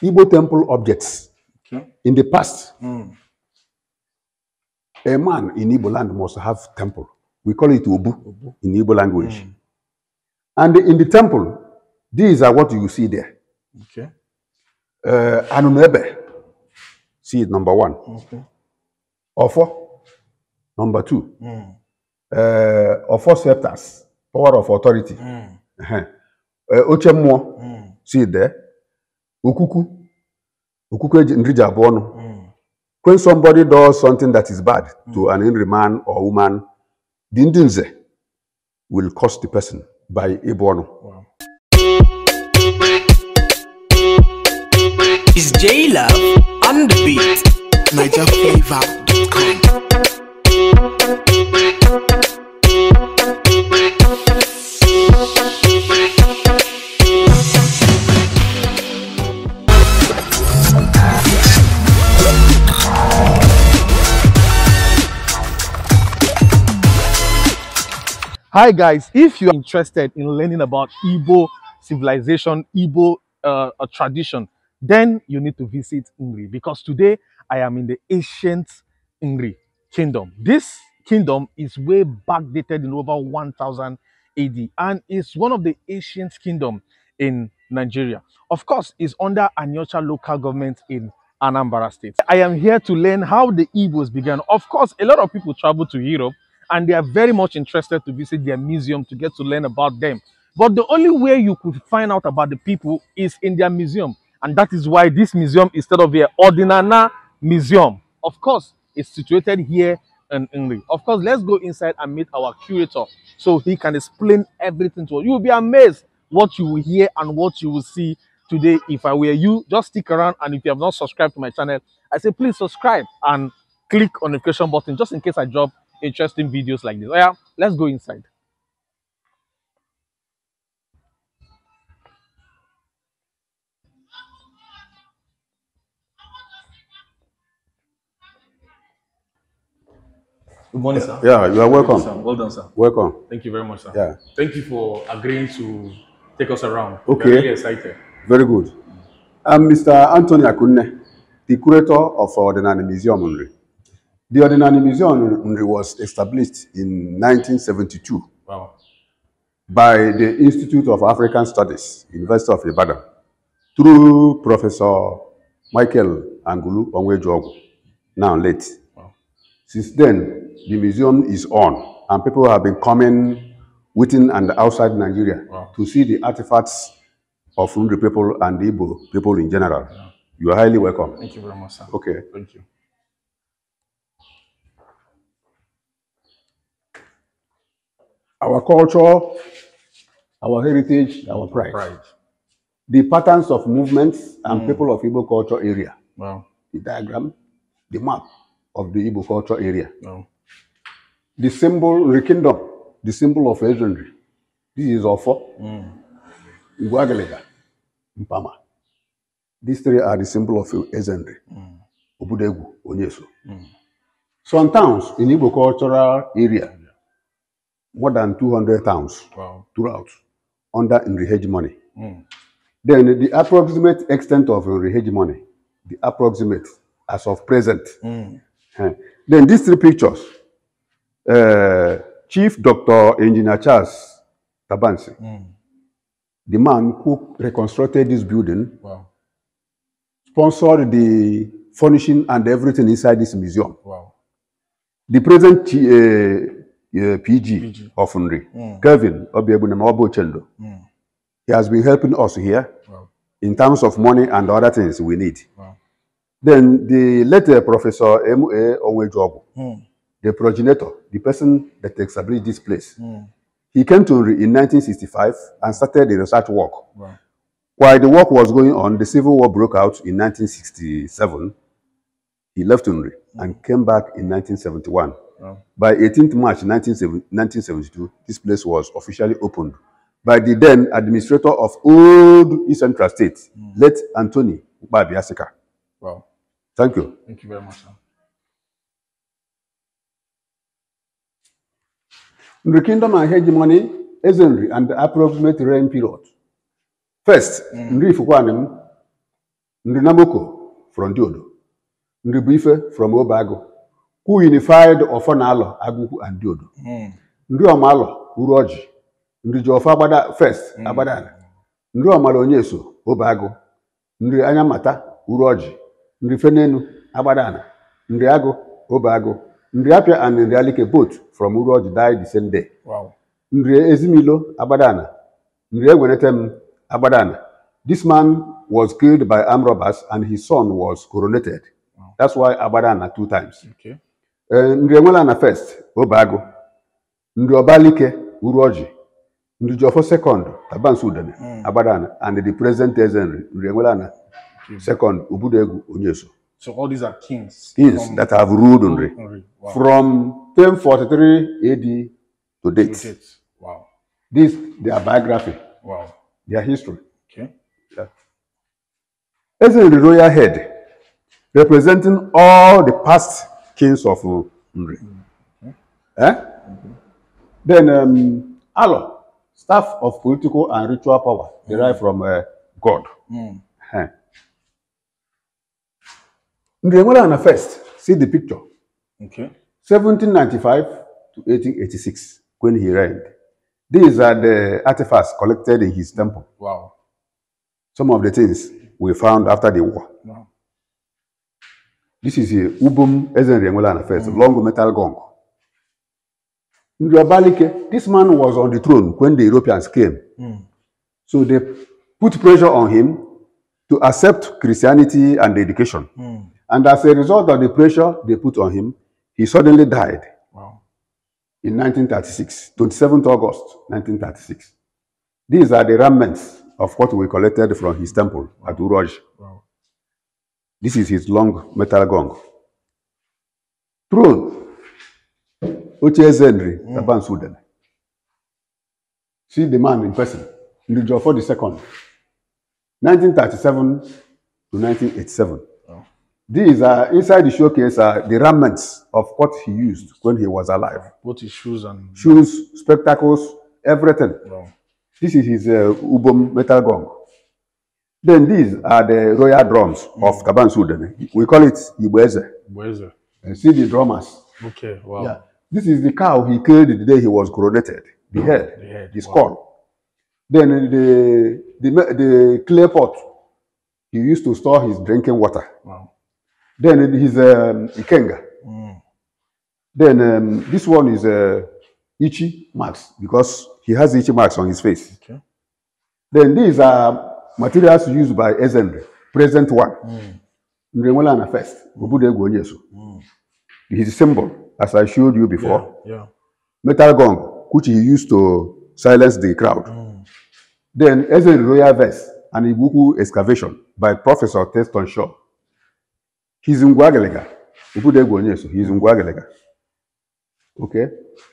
Igbo temple objects okay. in the past. Mm. A man in Igbo land must have temple. We call it Obu, in Igbo language. Mm. And in the temple, these are what you see there. Okay. Uh, Anunebe, see it number one. Okay. Ofo, number two. Mm. Uh, Ofo scepters, power of authority. Mm. Uh, Ochemmo, mm. see it there. Okuku. Okuku nrija bụ ọnụ. Hmm. When somebody does something that is bad mm. to hmm. an angry man or woman, the ndinze will cost the person by ịbụ ọnụ. Wow. Is J Love on the beat? NigerFlavor.com Hi guys, if you are interested in learning about Igbo civilization, Igbo uh, tradition, then you need to visit Ngri because today I am in the ancient Ngri kingdom. This kingdom is way back dated in over 1000 AD and is one of the ancient kingdoms in Nigeria. Of course, it's under Anyocha local government in Anambra state. I am here to learn how the Igbos began. Of course, a lot of people travel to Europe and they are very much interested to visit their museum to get to learn about them. But the only way you could find out about the people is in their museum. And that is why this museum, instead of the Ordinana Museum, of course, is situated here in England. Of course, let's go inside and meet our curator so he can explain everything to us. You will be amazed what you will hear and what you will see today. If I were you, just stick around. And if you have not subscribed to my channel, I say please subscribe and click on the notification button just in case I drop interesting videos like this. Oh yeah, let's go inside. Good morning, sir. Yeah, you are welcome. well done, sir. Welcome. Thank you very much, sir. Yeah. Thank you for agreeing to take us around. Okay. Very really excited. Very good. I'm uh, Mr. Anthony Akunne, the curator of uh, the Nani Museum. The Ordinary Museum was established in 1972 wow. by the Institute of African Studies, University of Ibadan, through Professor Michael Angulu Onwejuogu, now late. Wow. Since then, the museum is on, and people have been coming within and outside Nigeria wow. to see the artifacts of the people and Igbo people in general. Yeah. You are highly welcome. Thank you very much, sir. Okay. Thank you. our culture, our heritage, our pride. pride. The patterns of movements and mm. people of Igbo culture area. Wow. The diagram, the map of the Igbo culture area. Wow. The symbol, the kingdom, the symbol of legendary. This is Ofo, mm. Iguagalega, Mpama. These three are the symbol of legendary. Mm. Obudegu, Onyesu. Mm. Some towns in Igbo cultural area more than 200 towns wow. throughout under Enrihage money. Mm. Then the approximate extent of Enrihage money, the approximate as of present. Mm. Then these three pictures, uh, Chief Dr. Engineer Charles Tabansi, mm. the man who reconstructed this building, wow. sponsored the furnishing and everything inside this museum. Wow. The present uh, PG, Orphanry. Mm. Kevin Obiebunemaobo Chendo. Mm. He has been helping us here wow. in terms of money and other things we need. Wow. Then the later uh, Professor M.A. Eh, Onwejobu, mm. the progenitor, the person that established this place, mm. he came to in 1965 and started the research work. Wow. While the work was going on, the Civil War broke out in 1967. He left Unri mm. and hmm. came back in 1971 By 18th March 1972, this place was officially opened by the then administrator of old Eastern Central State, mm. late Anthony Ukpabiasika. Wow. Thank you. Thank you very much, sir. In the kingdom and hegemony, Ezenry and the approximate reign period. First, mm. Nri Fukwanim, Nri Namoko from Diodo, Nri Bife from Obago, Who unified ọfọ na-alọ agụkwu and diodo hmm. ndị ọma alọ uru ọjị ndị ji ọfọ agbada fest hmm. agbadala ndị ọmara onye so obe Obago. ndị anya mata uru ọjị ndị fenenu agbadala ndị agụ obe agụ ndị apịa and ndị alike both from uru ọjị die the same day Wow. ndị ezimilo agbadala ndị egwenete m agbadala this man was killed by armed robbers and his son was coronated that's why agbadala two times okay. Eh, ndị enwela na first obago ndị ọbalike uru ọjị ndị jọfọ sekọnd tabansu udene hmm. agbadana and the present ezenri ndị enwela na hmm. second ubudegwu onyeso So all these are kings. Kings that have ruled Nri from 1043 AD to date. To date. Wow. This their biography. Wow. Their history. Okay. Yeah. As the royal head, representing all the past kings of Nri. Okay. Eh? Then um, Alo, staff of political and ritual power derived from uh, God. Mm. Eh. first, see the picture. Okay. 1795 to 1886, when he reigned. These are the artefacts collected in his temple. Wow. Some of the things we found after the war. This is a ubum ezenriengola first, mm. long metal gong. Njobalike, this man was on the throne when the Europeans came. Mm. So they put pressure on him to accept Christianity and education. Mm. And as a result of the pressure they put on him, he suddenly died wow. in 1936, 27th August 1936. These are the remnants of what we collected from his temple at Uroj. Wow. This is his long metal gong. Throne Ochieze Nri mm. Taban Sudan. See the man in person. Ndujo for the second. 1937 to 1987. Oh. These are inside the showcase are the remnants of what he used when he was alive. What his shoes and shoes, spectacles, everything. Wow. This is his uh, Ubom metal gong. Then these are the royal drums of Kaban Sudan. We call it Ibweze. Ibweze. And uh, see the drummers. Okay, wow. Yeah. This is the cow he killed the day he was coronated. The head, the, head. the skull. Wow. Then uh, the, the, the clay pot he used to store his drinking water. Wow. Then uh, his um, Ikenga. Mm. Then um, this one is uh, Ichi marks because he has Ichi marks on his face. Okay. Then these are materials used by SMD, present one. Mm. first. Mm. His hmm. symbol, as I showed you before. Yeah, yeah. Metal gong, which he used to silence the crowd. Mm. Then SMD royal vest and Ibuku excavation by Professor Teston Shaw. He's in Guagalega. He's in Guagalega. Okay?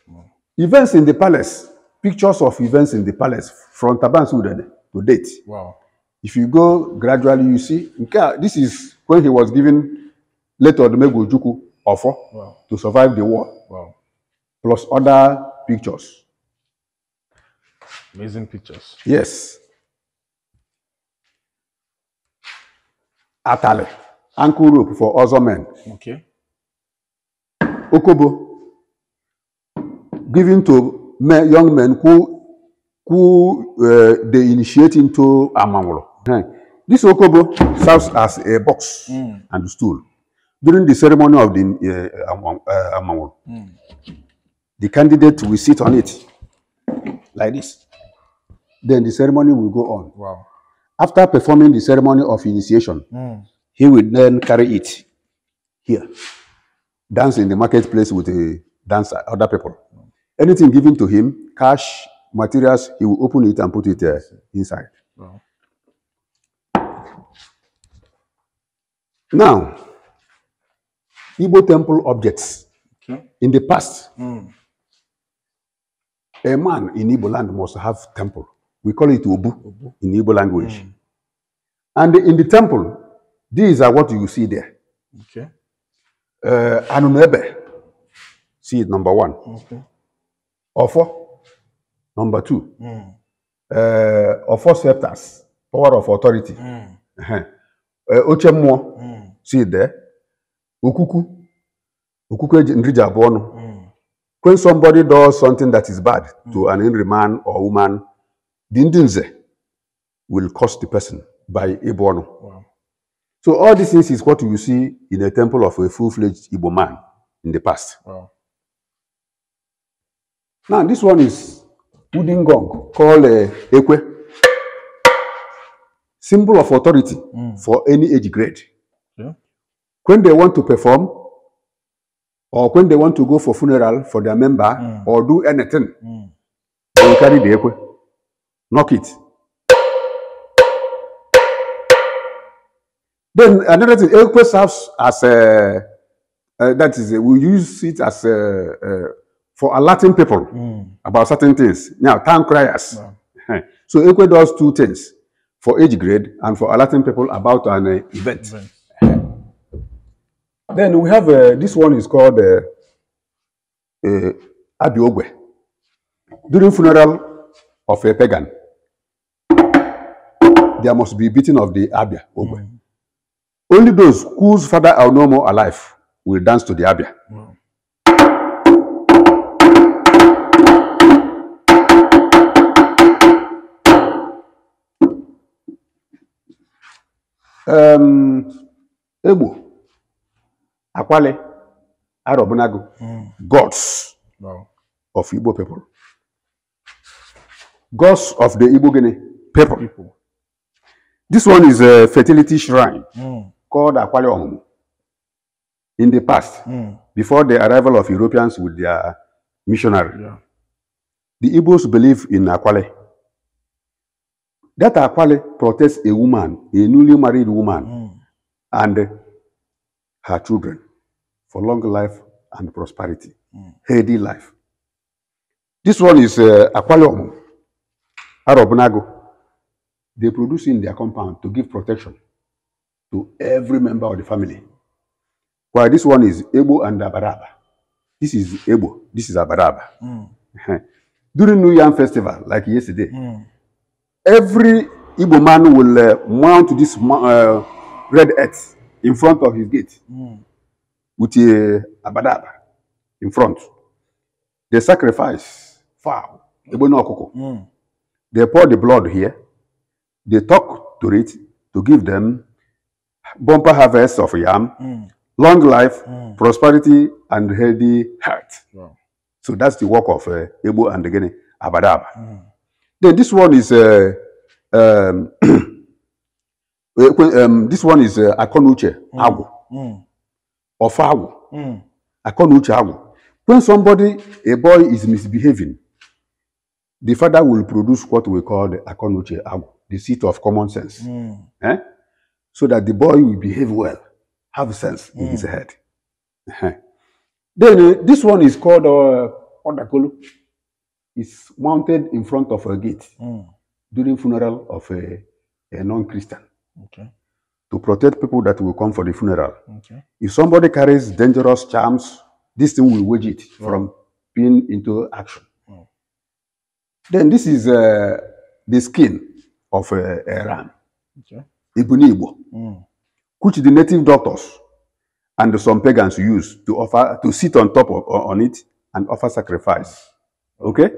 Hmm. Events in the palace, pictures of events in the palace from Taban Sudan to date. Wow. If you go gradually, you see, Nkea, this is when he was given later Odumegwu Ojukwu offer wow. to survive the war, wow. plus other pictures. Amazing pictures. Yes. Atale, ankle rope for other men. Okay. Okobo, given to men, young men who, who uh, they initiate into Amangolo. This okobo serves as a box mm. and stool. During the ceremony of the uh, uh, mm. the candidate will sit on it like this. Then the ceremony will go on. Wow. After performing the ceremony of initiation, mm. he will then carry it here, dance in the marketplace with a dancer, other people. Anything given to him, cash, materials, he will open it and put it uh, inside. Wow. Now, Igbo temple objects. Okay. In the past, mm. a man in Igbo land must have temple. We call it Obu, Obu. in Igbo language. Mm. And in the temple, these are what you see there. Okay. Uh, Anunebe, see it number one. Okay. Ofo, number two. Mm. Uh, Ofo scepters, power of authority. Mm. Uh -huh. uh, Ochemmo, mm si dee Ukuku, okuku nri ji abụọ ọnụ hmm. when somebody does something that is bad hmm. to an angry man or woman the ndị will cost the person by ịbụ ọnụ so all these things is what you see in a temple of a full-fledged Igbo man in the past. Wow. Now this one is wooden gong called uh, ekwe, symbol of authority mm. for any age grade when they want to perform or when they want to go for funeral for their member mm. or do anything, mm. they will carry the ekwe, knock it. Then another thing, ekwe serves as a, uh, that is, a, we use it as a, uh, for alerting people mm. about certain things. Now, town criers. Wow. So ekwe does two things, for age grade and for alerting people about an uh, event. event. Then we have uh, this one is called uh, uh, Abiogwe. During funeral of a pagan, there must be beating of the Abia Ogwe. Mm. Only those whose father are no more alive will dance to the Abia. Wow. Um, Egbo. Akwale, Arobunagu, mm. gods wow. of Igbo people. Gods of the Igbo Guinea people. people. This one is a fertility shrine mm. called Akwale Omumu. In the past, mm. before the arrival of Europeans with their missionary, yeah. the Igbos believe in Akwale. That Akwale protects a woman, a newly married woman, mm. and her children for long life and prosperity, mm. healthy life. This one is uh, Aquarium, Arab They produce in their compound to give protection to every member of the family. While this one is Ebo and Abaraba. This is Ebo, this is Abaraba. Mm. During New Yam Festival, like yesterday, mm. every Igbo man will uh, mount this uh, red earth in front of his gate mm. with a abadaba in front. They sacrifice fowl, ebono okoko. Mm. They pour the blood here. They talk to it to give them bumper harvest of yam, mm. long life, mm. prosperity, and healthy heart. Wow. So that's the work of uh, Ebo and again Abadaba. Mm. Then this one is uh, um, um, this one is uh, eh, Akonuche mm. Agu. Mm. Agu. Mm. Akonuche Agu. When somebody, a boy is misbehaving, the father will produce what we call the Akonuche Agu, the seat of common sense. Mm. Eh? So that the boy will behave well, have sense mm. in his mm. head. Then uh, this one is called uh, It's mounted in front of a gate mm. during funeral of a, a non-Christian okay. to protect people that will come for the funeral. Okay. If somebody carries dangerous charms, this thing will wage it from being into action. Then this is uh, the skin of uh, a ram, okay. Ibunibo, mm. which the native doctors and some pagans use to offer to sit on top of, on it and offer sacrifice. Mm. Okay,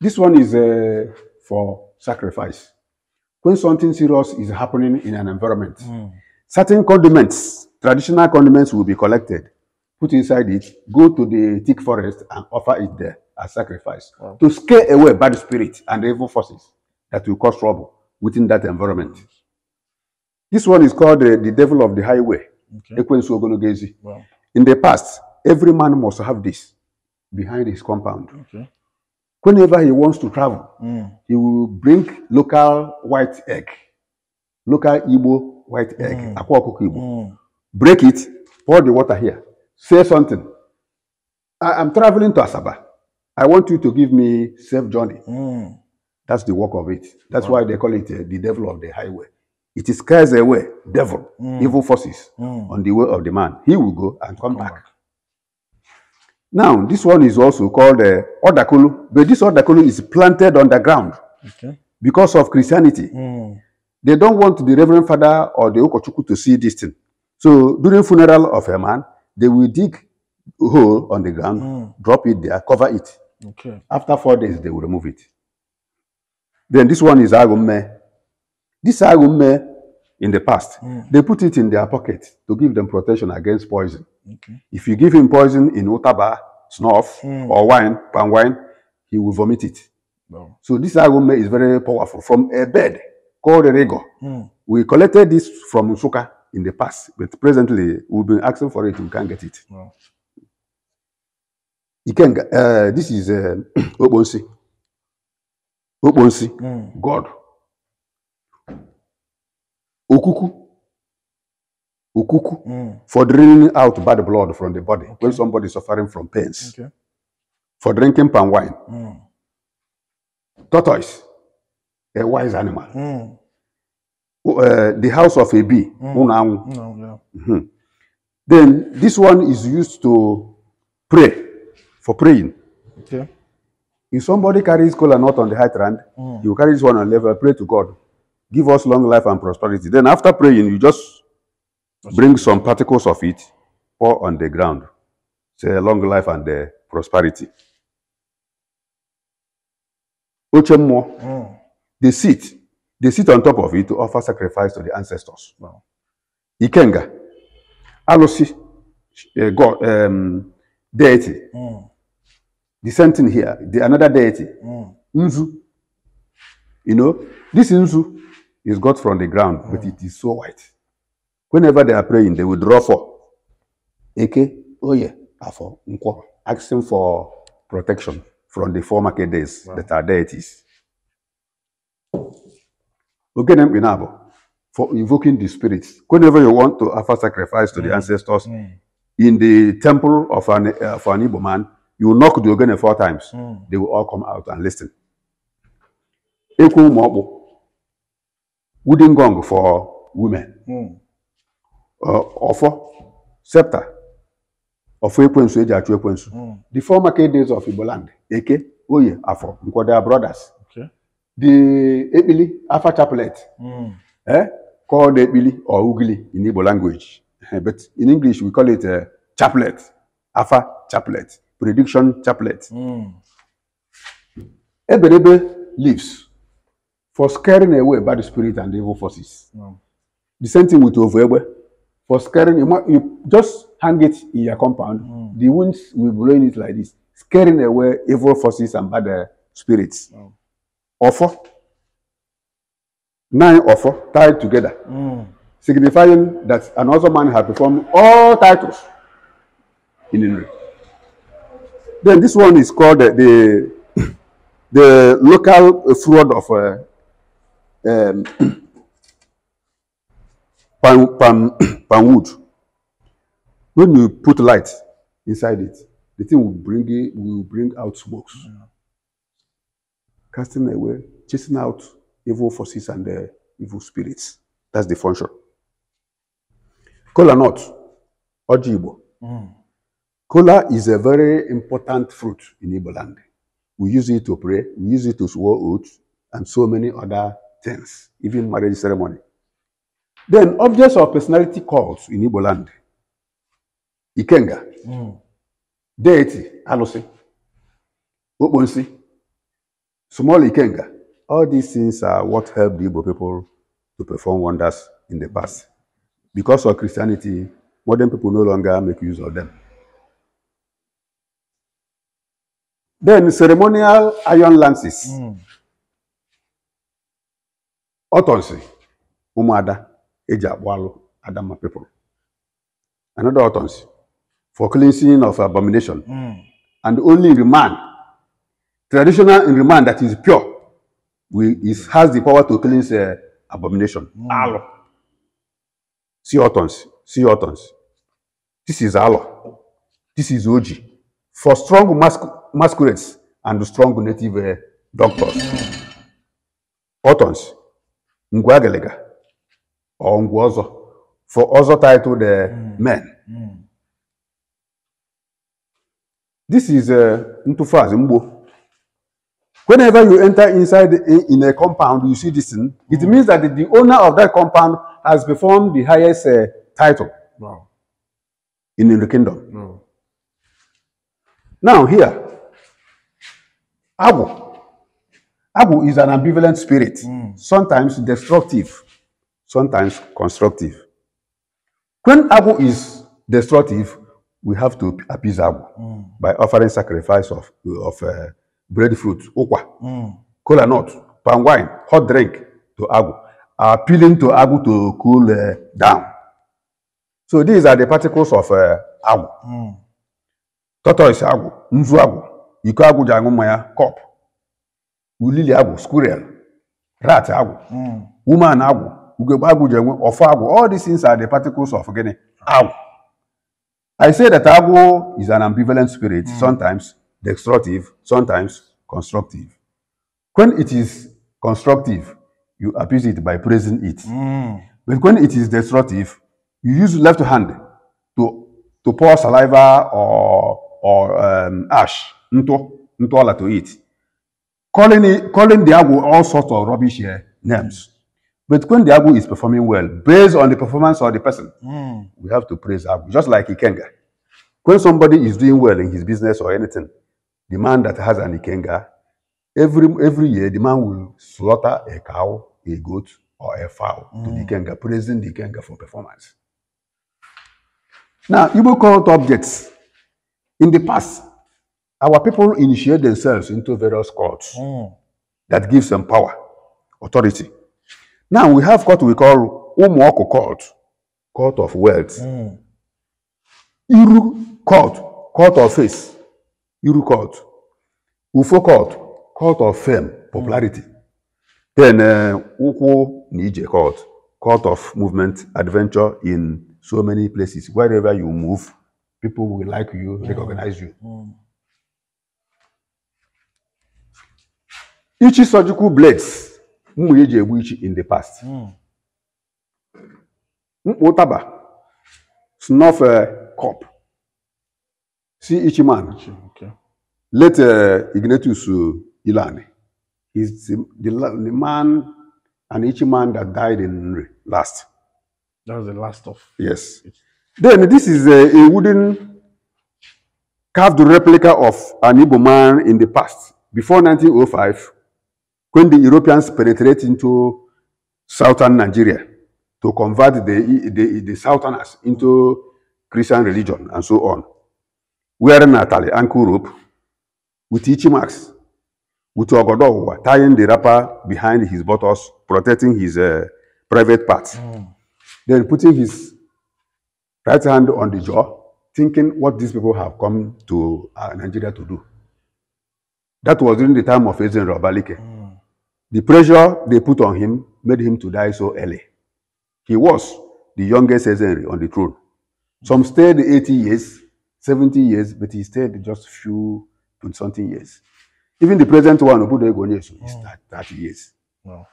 this one is uh, for sacrifice when something serious is happening in an environment, mm. certain condiments, traditional condiments will be collected, put inside it, go to the thick forest and offer it there as sacrifice wow. to scare away bad spirits and evil forces that will cause trouble within that environment. This one is called uh, the devil of the highway, okay. Wow. In the past, every man must have this behind his compound. Okay. whenever he wants to travel, mm. he will bring local white egg, local Igbo white egg, mm. akwa ọkụkọ Igbo. Mm. Break it, pour the water here, say something. I am traveling to Asaba. I want you to give me safe journey. Mm. That's the work of it. That's wow. why they call it uh, the devil of the highway. It is scares away devil, mm. evil forces mm. on the way of the man. He will go and come, come back. back. Now, this one is also called uh, Odakulu, but this Odakulu is planted on the ground okay. because of Christianity. Mm. They don't want the Reverend Father or the Okochuku to see this thing. So during funeral of a man, they will dig a hole on the ground, mm. drop it there, cover it. Okay. After four days, they will remove it. Then this one is Agumme. This Agumme, in the past, mm. they put it in their pocket to give them protection against poison. Okay. If you give him poison in otaba, snuff, mm. or wine, palm wine, he will vomit it. So this aroma is very powerful from a bed called a rego. Mm. We collected this from Usuka in the past, but presently we've been asking for it, we can't get it. No. You can, uh, this is uh, Obonsi. Obonsi, mm. God. Okuku, ukuku mm. for draining out bad blood from the body okay. when somebody is suffering from pains. Okay. For drinking palm wine. Mm. Tortoise, a wise animal. Mm. Uh, the house of a bee, mm. No, mm, yeah. mm -hmm. Then this one is used to pray, for praying. Okay. If somebody carries cola nut on the high trend, mm. you carry this one on level, pray to God. Give us long life and prosperity. Then after praying, you just Bring some particles of it, pour on the ground. Say long life and uh, prosperity. Ochemmo, mm. they sit. They sit on top of it to offer sacrifice to the ancestors. Ikenga, Alosi, uh, God, um, deity. Mm. The same thing here, the, another deity. Mm. Nzu. You know, this Nzu is got from the ground, but mm. it is so white. Whenever they are praying, they will draw for oh yeah, Afo, asking for protection from the former Kedes wow. that are deities. Okay, them inabo for invoking the spirits. Whenever you want to offer sacrifice to mm. the ancestors mm. in the temple of an, uh, an Igbo man, you knock the Ogene four times. Mm. They will all come out and listen. Eku Mobu, wooden gong for women. Mm. ọfọ septa ọfọ ekwensu eji achụ ekwensu hmm. the four market days of igboland eke oye afọ nkwoda brothers the ekpili afa chaplet hmm. eh called ekpili or ugili in igbo language eh, but in english we call it uh, chaplet afa chaplet prediction chaplet mm. eberebe leaves for scaring away bad spirit and evil forces mm. the same thing with ovuegbe for scaring you just hang it in your compound mm. the winds will blow in it like this scaring away evil forces and bad uh, spirits oh. Mm. offer nine offer tied together mm. signifying that another man had performed all titles in Inri. Then this one is called uh, the the local fraud of uh, um, palm, palm, palm wood. When you put light inside it, the thing will bring it, will bring out smokes. Casting away, chasing out evil forces and the uh, evil spirits. That's the function. Kola nut, ojibo. Mm. Kola is a very important fruit in Igbo land. We use it to pray, we use it to swear oath, and so many other things, even marriage ceremony. Then objects of personality cults in Igbo land. Ikenga. Mm. Deity, alusi, Okponsi. Small Ikenga. All these things are what helped the Igbo people to perform wonders in the past. Because of Christianity, modern people no longer make use of them. Then ceremonial iron lances. Mm. Otonsi, Umuada eji akpụ alụ Adamma people. Another utterance for cleansing of abomination. Mm. And only in remand, traditional in remand that is pure, we, is, has the power to cleanse uh, abomination. Mm. Alo. see utterance. see utterance. This is alo. This is oji. For strong mask masquerades and strong native uh, doctors. Mm. ngwa Ngwagelega or Nguozo for also titled uh, mm. Men. Mm. This is uh, Ntufaz Mbo. Whenever you enter inside a, in a compound, you see this thing. It mm. means that the, the owner of that compound has performed the highest uh, title wow. in, in the kingdom. Mm. Now here, Abu. Abu is an ambivalent spirit, mm. sometimes destructive sometimes constructive. When Abu is destructive, we have to appease Abu mm. by offering sacrifice of, of uh, breadfruit, okwa, mm. cola nut, palm wine, hot drink to Agu, appealing to Agu to cool uh, down. So these are the particles of uh, Agu. Mm. Tortoise Agu, Nzu Agu, Iko Agu Jangumaya, Cop, Ulili Agu, Squirrel, Rat Agu, mm. Woman Agu, Ugegbe agwụ ji enwe ọfọ agwụ. All these things are the particles of gịnị? Agwụ. I say that agwụ is an ambivalent spirit, mm. sometimes destructive, sometimes constructive. When it is constructive, you appease it by praising it. Mm. But when it is destructive, you use left hand to to pour saliva or or um, ash into into all to it, calling calling the agwo all sorts of rubbish here names. But when the Agu is performing well, based on the performance of the person, mm. we have to praise Agu, just like Ikenga. When somebody is doing well in his business or anything, the man that has an Ikenga, every, every year the man will slaughter a cow, a goat, or a fowl mm. to the hmm. Ikenga, praising the Ikenga for performance. Now, you call it objects. In the past, our people initiate themselves into various cults mm. that gives them power, authority. Now we have court we call Umuoko Court, Court of Wealth. Mm. Iru Court, Court of Face. Iru Court. Ufo Court, Court of Fame, Popularity. Mm. Then uh, Nije Court, Court of Movement, Adventure in so many places. Wherever you move, people will like you, mm. recognize you. Mm. Ichi surgical blades mma e ji egbu ichi in the past hmm. mkpa ụtaba snuff cup si ichiman late uh, Ignatius uh, Ilani is the, the, the man an Ichiman that died in Nri last. That was the last of. Yes. Then this is a, a wooden carved replica of an Igbo man in the past before 1905. when the Europeans penetrate into southern Nigeria to convert the, the, the southerners into Christian religion and so on, wearing Natalie ankle rope with each marks, with Ogodowa tying the wrapper behind his buttocks, protecting his uh, private parts, mm. then putting his right hand on the jaw, thinking what these people have come to uh, Nigeria to do. That was during the time of Ezen Robalike. Mm. The pressure they put on him made him to die so early. He was the youngest Caesar on the throne. Some stayed 80 years, 70 years, but he stayed just few and something years. Even the present one, Obudo Egonyesu, is oh. 30 years. Wow.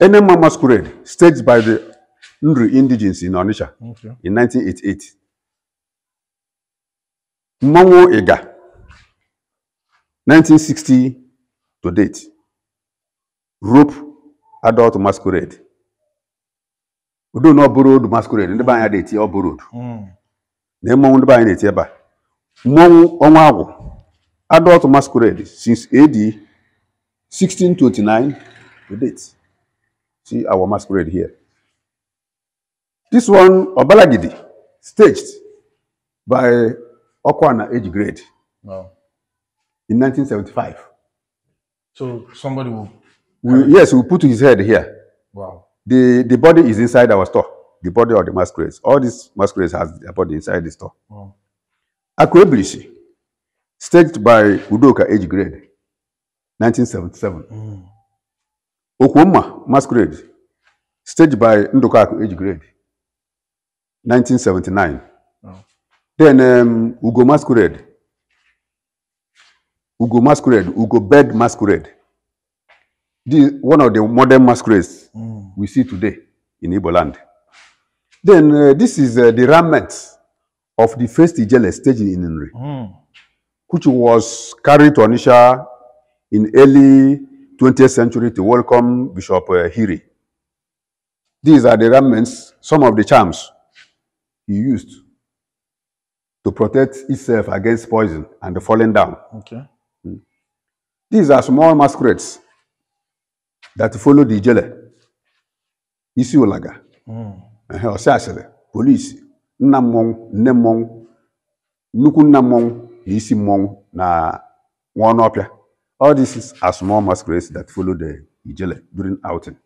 Enema Masquerade, staged by the Ndri Indigenous in Onitsha okay. in 1988. Mongo Ega, 1960 to date rope adult masquerade udo na borrowed masquerade ndị be anyị na-eti ọ borrowed na mmọnwụ ndị be anyị na-eti ebe a mmọnwụ ọnwa agwụ adult masquerade since AD 1629 to date see our masquerade here this one Obalagidi staged by Okwana age grade wow. in 1975 So somebody will. We, yes, we put his head here. Wow. The the body is inside our store. The body of the masquerades. All these masquerades has their body inside the store. Wow. Akweblishi, staged by Udoka age grade, 1977. Mm. Okwoma masquerade, staged by Ndoka age grade, 1979. Wow. Then um, Ugo masquerade, Ugo masquerade, Ugo bed masquerade. This one of the modern masquerades mm. we see today in Igbo land. Then uh, this is uh, the remnants of the first Ijele stage in Inri, mm. which was carried to AniSha in early 20th century to welcome Bishop uh, Hiri. These are the remnants, some of the charms he used to protect itself against poison and falling down. Okay. These are small masquerades that follow the ijele isi ụlaga ọsịasịrị hmm. polisi nna mmọnwụ nne mmọnwụ nnukwu nna mmọnwụ na isi mmọnwụ na nwa ọnụ ọpịa all these are small masquerades that follow the ijele during outing.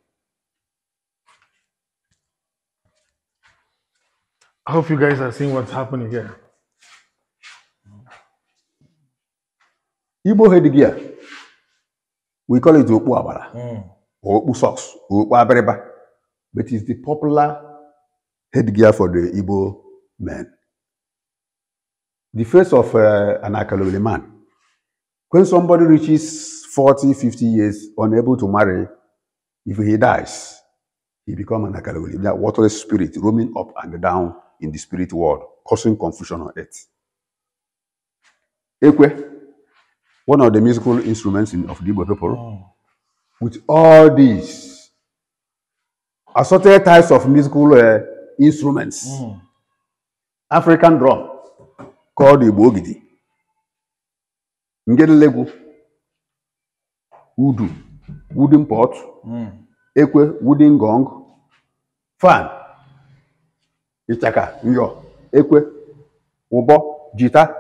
I hope you guys are seeing what's happening here. Igbo headgear we call it okpu abara mm. or okpu socks okpu abiriba but it's the popular headgear for the Igbo men. The face of uh, an Akalowele man. When somebody reaches forty, fifty years, unable to marry, if he dies, he become an Akalowele, that waterless spirit roaming up and down in the spirit world, causing confusion on earth. Ekwe, one of the musical instruments in, of the Igbo people. Oh. With all these assorted types of musical uh, instruments, mm. African drum called Igbo Ogidi, Ngedelegu, Udu, wooden pot, mm. Ekwe, wooden gong, fan, Ichaka, Nyo, Ekwe, Obo, Jita,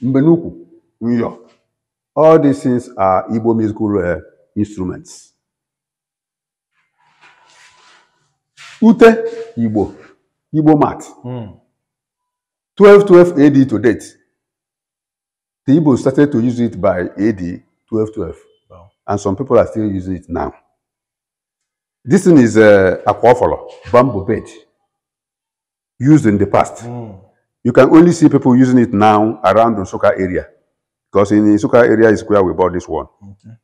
Mbenuku, Nyo. All these things are Igbo musical uh, instruments. Ute, Igbo, Igbo mat. Mm. 1212 AD to date. The Igbo started to use it by AD 1212. Wow. And some people are still using it now. This thing is uh, eh, aquaphora, bamboo bed, used in the past. Mm. You can only see people using it now around the Soka area. Because in the Isuka area is where we bought this one. Okay.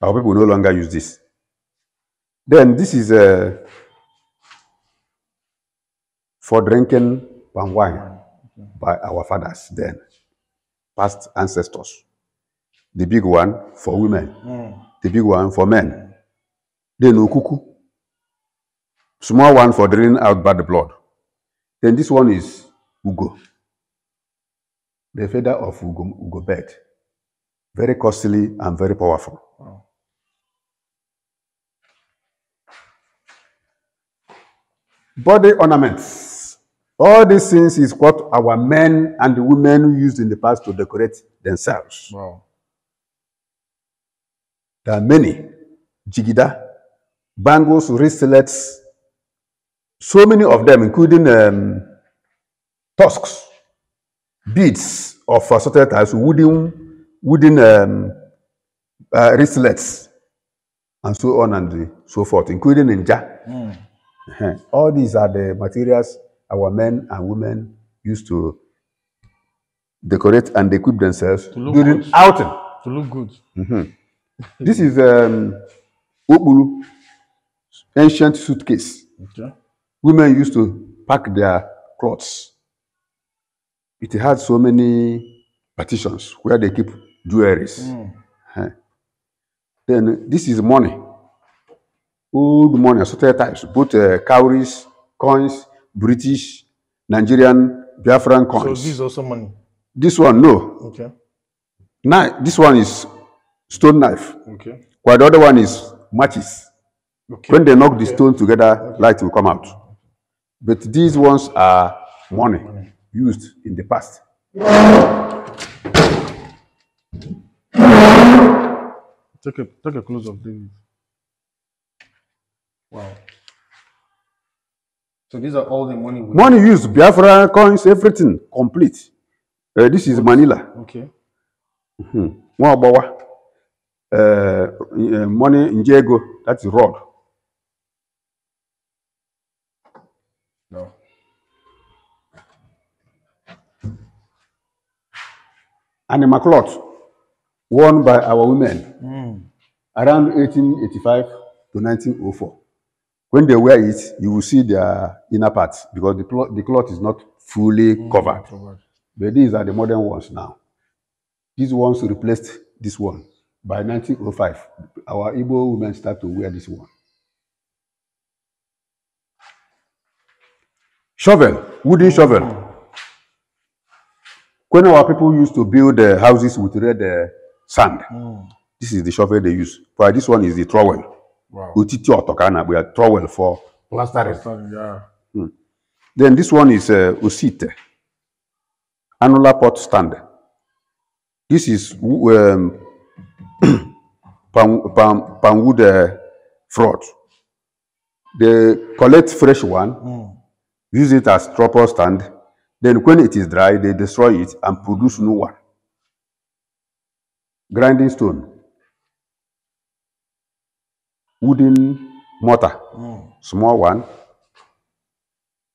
Our people no longer use this. Then this is uh, for drinking palm wine okay. by our fathers then, past ancestors. The big one for women, mm. the big one for men. Then no cuckoo. Small one for draining out bad blood. Then this one is Ugo, the feather of Ugo, Ugo bird very costly and very powerful. Body ornaments. All these things is what our men and the women used in the past to decorate themselves. Wow. There are many. Jigida, bangles, wristlets, so many of them, including um, tusks, beads of assorted types, wooden wooden um, uh, wristlets, and so on and so forth, including ninja. Mm. All these are the materials our men and women used to decorate and equip themselves during good. outing. To look good. Mm-hmm. this is um, Obulu, ancient suitcase. Okay. Women used to pack their clothes. It had so many partitions where they keep jewelries. Mm. Huh. Then this is money. Old money, assorted types, both uh, cowries, coins, British, Nigerian, Biafran coins. So this is also money? This one, no. Okay. Now, this one is stone knife. Okay. While the other one is matches. Okay. When they knock okay. the stone together, okay. light will come out. But these ones are money, money. used in the past. Take a take a close of David. Wow. So these are all the money. We money have. used, Biafra coins, everything complete. Uh, this is Manila. Okay. Mm-hmm. Mwabawa. Uh, uh, money in Diego, that's road. No. Animal cloth won by our women mm. around 1885 to 1904. When they wear it, you will see their inner parts because the, the cloth is not fully mm, covered. covered. But these are the modern ones now. These ones replaced this one. By 1905, our Igbo women start to wear this one. Shovel, wooden hmm. shovel. When our people used to build the houses with red uh, sand. Mm. This is the shovel they use. For this one is the trowel. Wow. we are trowel for plastering. yeah. mm. Then this one is uh, usite, annular pot stand. This is um, palm, palm, palm wood uh, fraud. They collect fresh one, mm. use it as tripod stand. Then when it is dry, they destroy it and produce new one grinding stone wooden mortar mm. small one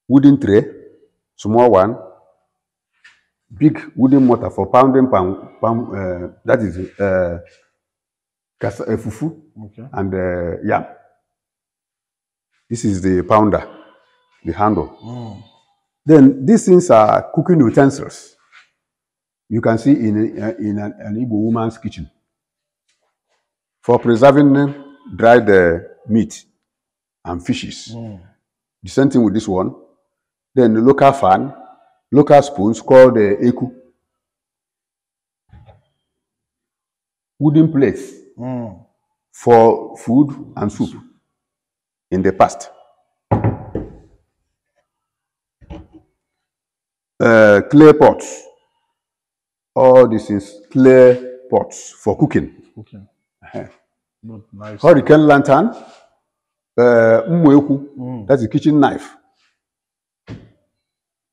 wooden tray small one big wooden mortar for pounding palm palm uh, eh, that is eh, kasa, uh, fufu okay. and uh, yam this is the pounder the handle mm. then these things are cooking utensils you can see in, a, in an, an Igbo woman's kitchen for preserving dried uh, meat and fishes. Mm. The same thing with this one. Then the local fan, local spoons called the uh, eku. Wooden plates mm. for food and soup in the past. Uh, clay pots all these is clear pots for cooking. cooking. Okay. nice. Hurricane lantern, uh, mm. that's a kitchen knife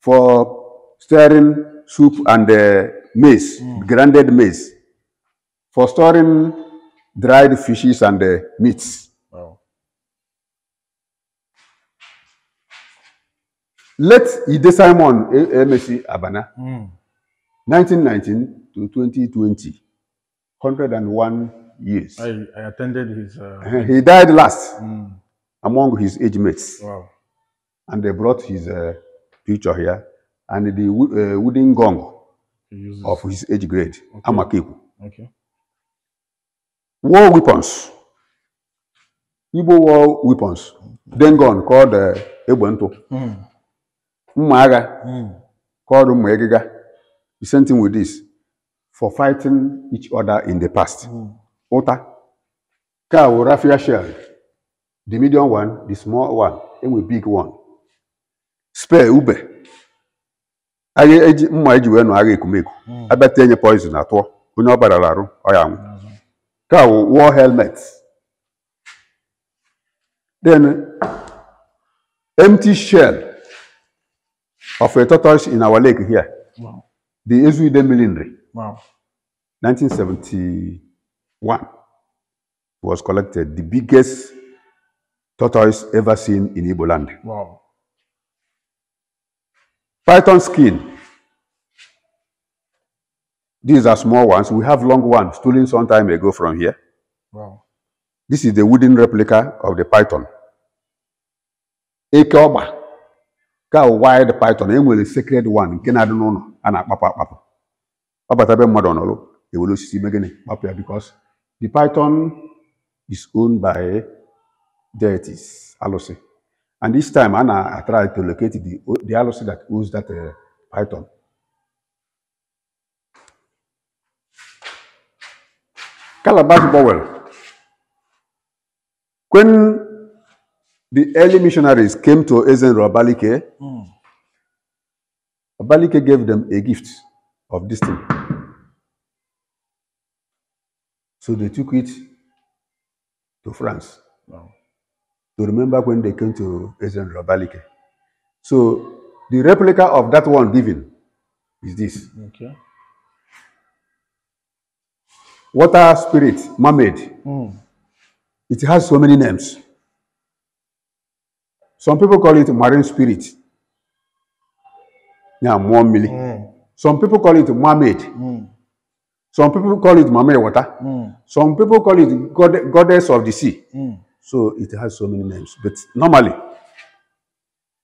for stirring soup and uh, maize, mm. grinded maize, for storing dried fishes and uh, meats. Wow. Let Ide Simon, MSC Abana. Mm. 1919 to 2020, 101 years. I, I attended his. Uh... He died last mm. among his age mates. Wow. And they brought his uh, picture here and the uh, wooden gong of his age grade, okay. Amakiku. Okay. War weapons. Igbo war weapons. Then gun called uh, Ebonto. Mm. mm. Hmm. called Mmegiga. The same thing with this for fighting each other in the past. Mm. Ota. Car will raffia share. The medium one, the small one, and the big one. Spare Uber. Aye eji mma eji wee nọ agha ekumeku. Hmm. Abata enye poison atọ. Onye ọ barala arụ, Car hmm. will wear helmet. Then empty shell of a tortoise in our lake here. Wow. the Ezui Demilinry. Wow. 1971 was collected the biggest tortoise ever seen in Igbo land. Wow. Python skin. These are small ones. We have long ones stolen some time ago from here. Wow. This is the wooden replica of the python. Ekeoba. Ka wide python. a sacred one. Nke na-adị know? a na-akpapụ akpapụ ọ bata ebe mmadụ nọrụ ewere osisi ime gịnị kpapụ ya because the python is owned by deities alụsị and this time a na-atry to locate the, the alụsị that owns that uh, python Calabash Bowel. When the early missionaries came to Ezen Rabalike, mm. Abalike gave them a gift of this thing. So they took it to France. Wow. To remember when they came to President Abalike. So the replica of that one given is this. Okay. Water spirit, mermaid. Mm. It has so many names. Some people call it marine spirit. Yeah, more milk. Mm. Some people call it mermaid. Mm. Some people call it mermaid water. Mm. Some people call it god goddess of the sea. Mm. So it has so many names. But normally,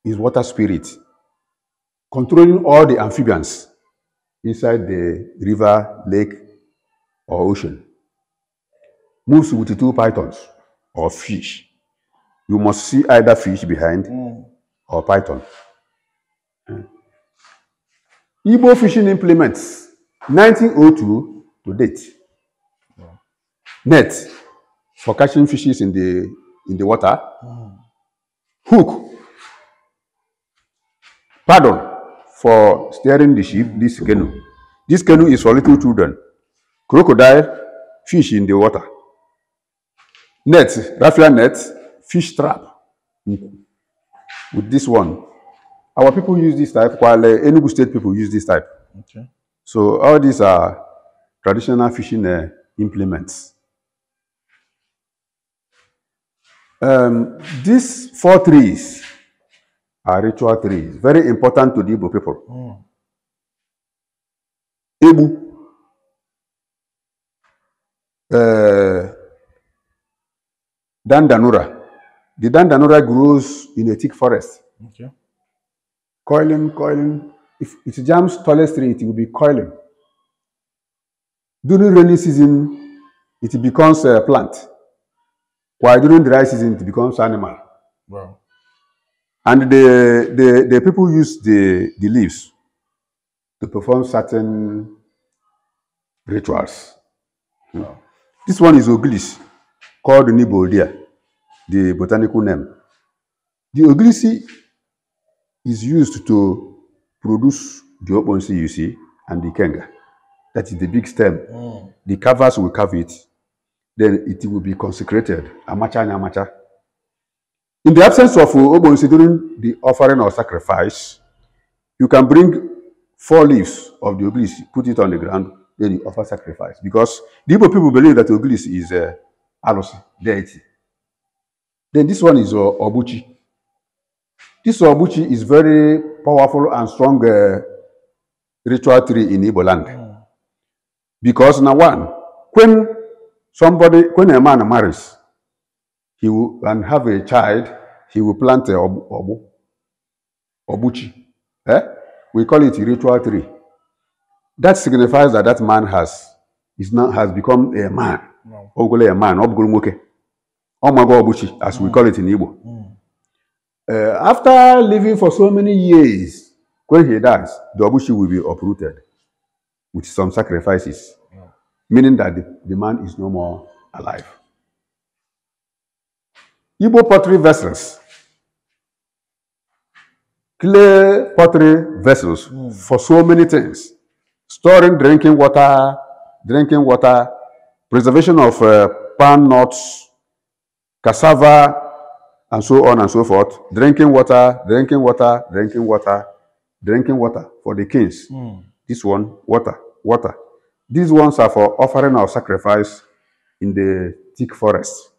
is water spirit controlling all the amphibians inside the river, lake, or ocean. Moves with the two pythons or fish. You must see either fish behind mm. or python. Igbo fishing implements 1902 to date. Net for catching fishes in the in the water. Hook. Pardon for steering the ship, this canoe. This canoe is for little children. Crocodile, fish in the water. Net, raffia net, fish trap. With this one, Our people use this type, Kwale, Enugu State people use this type. Okay. So all these are traditional fishing uh, implements. Um, these four trees are ritual trees, very important to the Igbo people. Oh. Hmm. Ebu, uh, Dandanura. The Dandanura grows in a thick forest. Okay. coiling, coiling. If it jams tallest tree, it will be coiling. During rainy season, it becomes a plant. While during dry season, it becomes animal. Wow. And the, the, the people use the, the leaves to perform certain rituals. Hmm. Wow. This one is Oglis, called Niboldia, the botanical name. The Oglisi is used to produce the okponsi you see and the kenga. That is the big stem. Mm. The covers will cover it. Then it will be consecrated. Amacha and amacha. In the absence of uh, okponsi during the offering or sacrifice, you can bring four leaves of the obelisk, put it on the ground, then you offer sacrifice. Because the Igbo people believe that obelisk is a uh, alusi deity. Then this one is uh, Obuchi. This Obuchi is very powerful and strong uh, ritual tree in Igbo land. Mm. Because now one, when somebody, when a man marries, he will, and have a child, he will plant a ob, obu, Obuchi. Eh? We call it a ritual tree. That signifies that that man has is now has become a man. No. a man. Obuchi, as mm. we hmm. call it in Igbo. Mm. Uh, after living for so many years, when he dies, the Obushi will be uprooted with some sacrifices, yeah. meaning that the, the man is no more alive. Igbo pottery vessels, clay pottery vessels mm. for so many things, storing drinking water, drinking water, preservation of uh, pan nuts, cassava, and so on and so forth. Drinking water, drinking water, drinking water, drinking water for the kings. Mm. This one, water, water. These ones are for offering our sacrifice in the thick forest.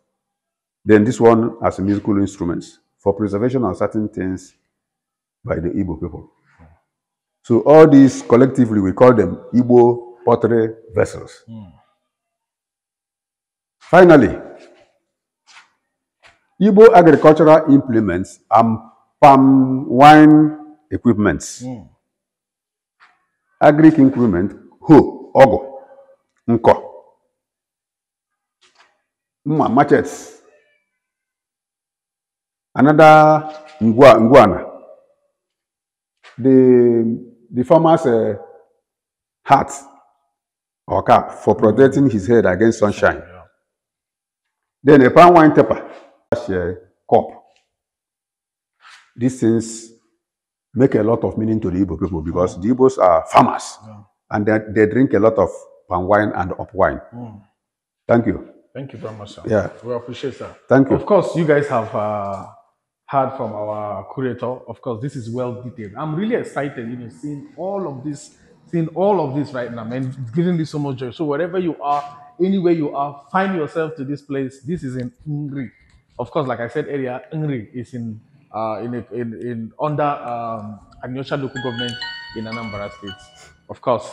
Then this one as musical instruments for preservation of certain things by the Igbo people. So all these collectively, we call them Igbo pottery vessels. Mm. Finally, Igbo agricultural implements and palm wine equipments. Mm. Agric increment, hoe, ọgụ, nkọ, mma machetes, another ngwa ngwana. The the farmer's uh, hat or cap for protecting his head against sunshine. Then a palm wine taper. here, cup. These things make a lot of meaning to the Igbo people because the Igbos are farmers yeah. and they, they drink a lot of palm wine and up wine. Mm. Thank you. Thank you very much, sir. Yeah. We appreciate that. Thank you. Of course, you guys have uh, heard from our curator. Of course, this is well detailed. I'm really excited, you know, seeing all of this, seeing all of this right now, man. It's giving me so much joy. So wherever you are, anywhere you are, find yourself to this place. This is in Ingrid of course, like I said earlier, Ngri is in uh, in, in in under um, Agnosha local government in Anambra State. Of course,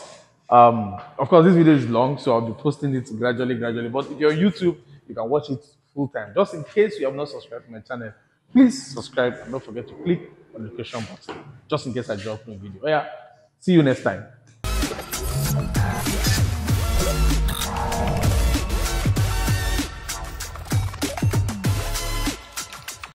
um, of course, this video is long, so I'll be posting it gradually, gradually. But if you're on YouTube, you can watch it full time. Just in case you have not subscribed to my channel, please subscribe and don't forget to click on the question button. Just in case I drop new video. Oh, yeah, see you next time.